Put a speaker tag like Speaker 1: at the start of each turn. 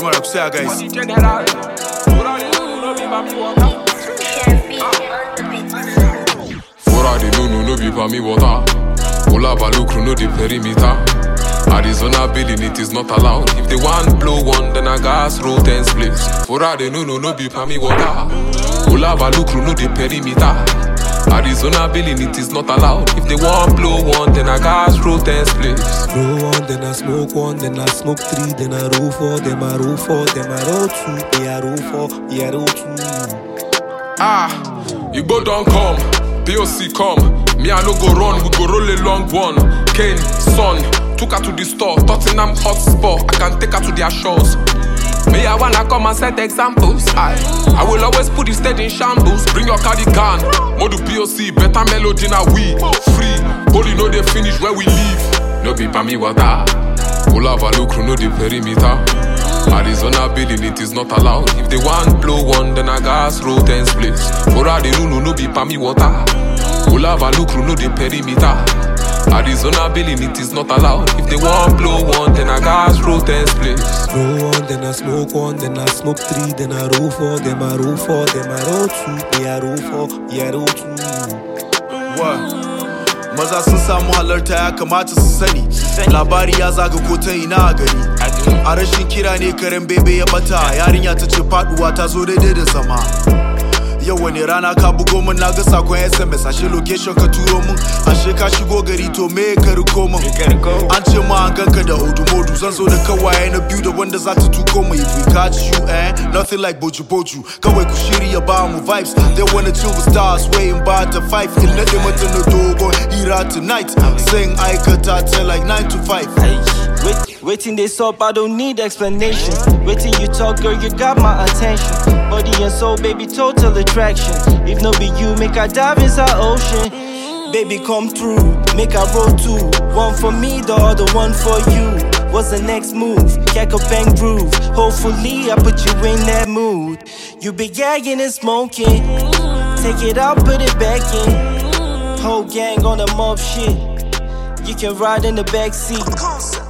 Speaker 1: She wanna say, guys. no be
Speaker 2: me water. no the perimeter. Arizona billing it is not allowed. If they want blow one, then gas roll ten splits. For all they know, no be for me water. no the perimeter. Arizona billing, it is not allowed. If they want blow one, then I gas
Speaker 3: roll ten spliffs. blow one, then I smoke one, then I smoke three, then I roll four, then I roll four, then I roll two, dem I roll four, yeah I roll two.
Speaker 2: Ah, you go don't come, POC come. Me I no go run, we go roll a long one. Kane, son, took her to the store, Tottenham hotspot. I can take her to their shores. Me, I wanna come and set examples. I, I will always put the stage in shambles. Bring your cardigan, Modu POC, better melody na we free. Holy no they finish where we live. No be me water. Olava Lucru no the perimeter. Arizona building it is not allowed. If they want blow one, then I gas roll ten splits. Ora the no be me water. Olava Lucru no the perimeter. Arizona billing, it is not allowed. If they want blow one, then I gas roll ten splits.
Speaker 3: blow one, then I smoke one, then I smoke three, then I roll four, then I roll four, then I roll two, me I roll four, me I roll two.
Speaker 1: What? maza sun samu halarta ya kamata su sani labari ya zaga ko ta ina a gari a rashin kira ne karen bebe ya bata yarinya ta ce faduwa ta zo daidai da zama yau wani rana ka bugo min na ga sakon sms ashe location ka turo min ashe ka shigo gari to me ka riko min an ce ma an ganka da hudu modu zan zo da kawaye na biyu da wanda za ta tuko mu if we catch you eh nothing like boju boju kawai ku shirya ba mu vibes they wanna chill with stars waiting by the five in na mata na dogon tonight sing aikata ta like 9 to 5
Speaker 4: Waiting dey sup, I don't need explanation. Waiting you talk, girl, you got my attention. Body and soul, baby, total attraction. If no be you, make I dive inside ocean. Baby, come through, make I roll too One for me, the other one for you. What's the next move? Jack a bang groove. Hopefully, I put you in that mood. You be gagging and smoking. Take it out, put it back in. Whole gang on the mob shit. You can ride in the back seat.